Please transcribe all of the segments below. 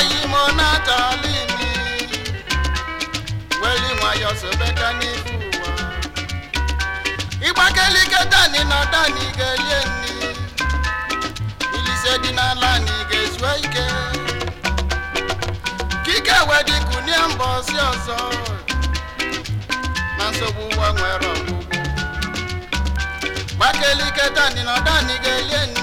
oyimo na imi dani na dani elie nni ilise dị n'ala anyị ga-ezue ike kike wedikunie mba ọzọ na nsogbu ụwa nwere ọgwụgwụ gbakelike dani na elie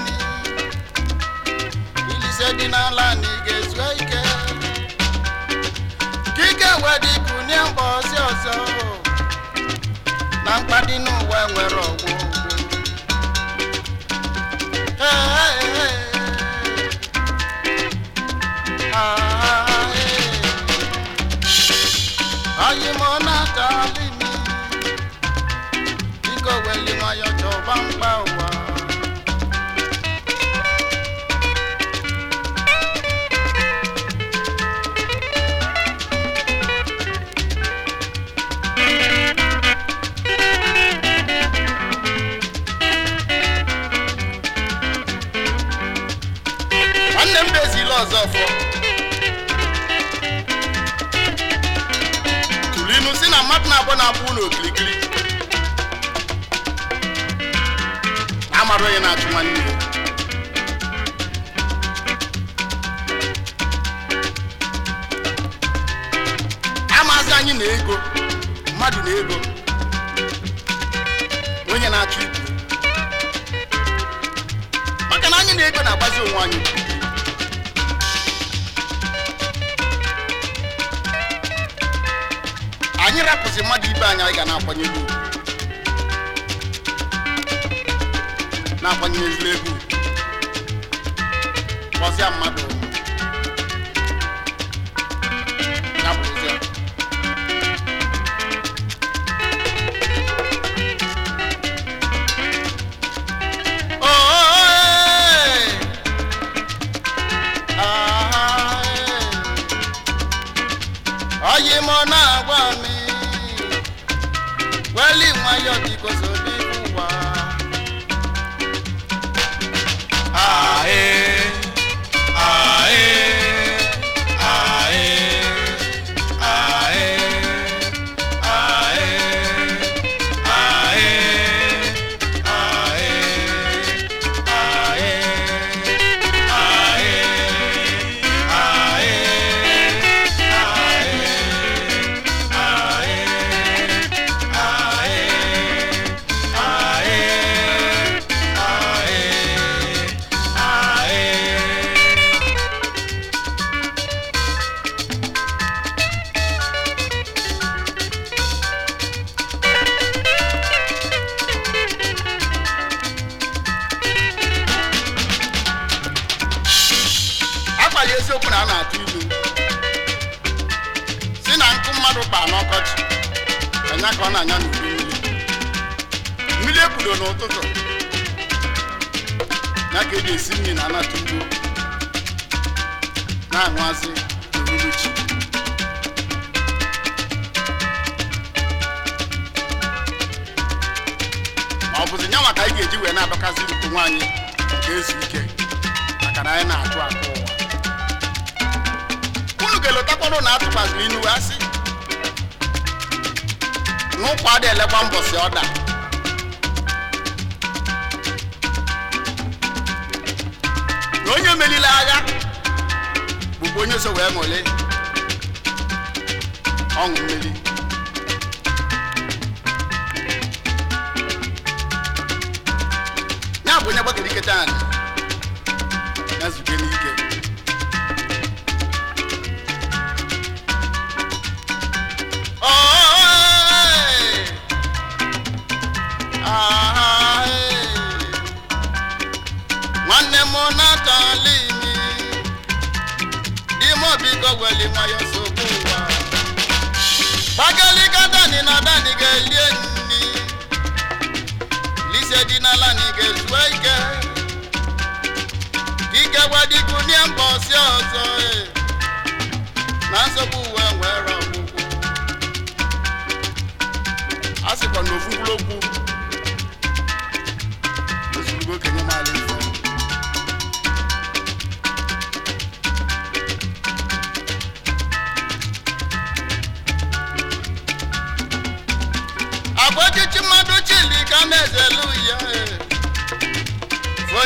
na mkpadị n'ụwa nwere ọgwụ abụọ na-abụ ụlọ okirikiri na amara onye na-achụ nwanne ya amazị anyị na ego mmadụ na ego onye na-achụ ibu maka na anyị na ego na-agbazi onwe anyị anyị rapụsị mmadụ ibe anyị anyị ga na akwanyere ugwu na-akwanye ezigbo ego kpọsịa mmadụ okwu a na-atụ ilu si na nkụ mmadụ kpa n'ọkọchị anya ka ọ na-anya n'udu mmiri mmiri ebudo n'ụtụtụ ya ka eji esi nri na anata ugbo na-aṅụazị n'uhuruchi ọ bụzi nyanwa ka anyị ga-eji wee na-abakazị ukwu nwaanyị nke ezu ike maka na anyị na-atụ akụ ụwa ga ụtakwado na atụkwasịrị inu asị n'ụkwa dị elekwa mbọsị ọda na onye melile agha bụkwa onye so wee ṅụle ọṅụ mmeri ya bụ onye gbakere ike taa na n'ihu natali mi ime obi ka oweli nwayọ nsogbu ụwa bagalika dani na dani ga-elie nni lise ga-ezue ike ike gwadikunie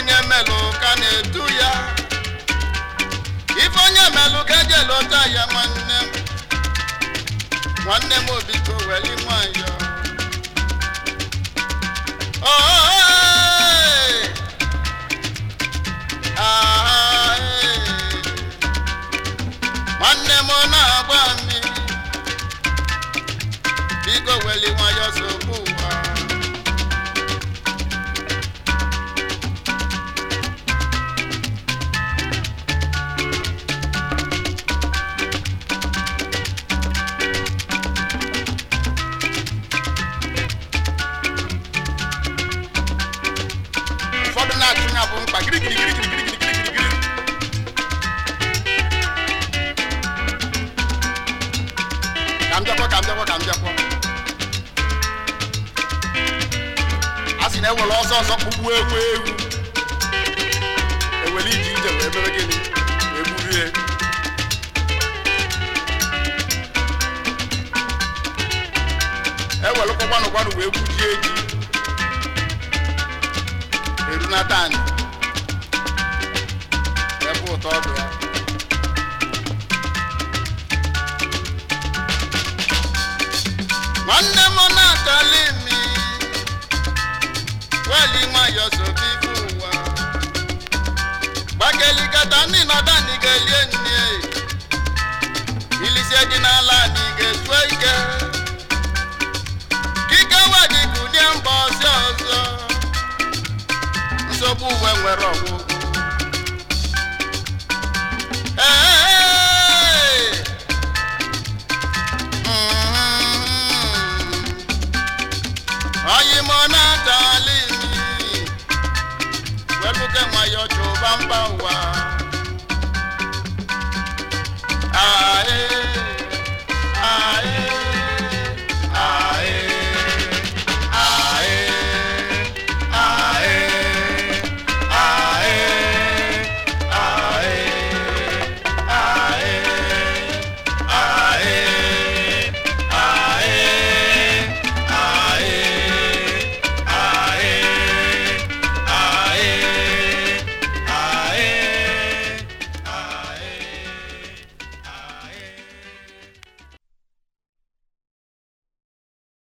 onye melụ ka na-edu ya ife onye melụ ka eji elota ya nwanne m nwanne m obiko weli nwayọ nwanne m na-agba mmiri biko weli nwayọ sogbu anya bụ mkpa asị ka a sị na ewere ọsọ ọsọ kpụgbuo egwu egwu ewere ije ije wee mere gịnị egburie ewere kwakwanụ gwanụ wee gwujie eji Jonathan ebe ụtọ ọ ya nwanne m na-atọli mi weli nwayọ sobi ibe ụwa gbageligata ndị na igelie nne ilisie dị n'ala na ike nwere ọgwụ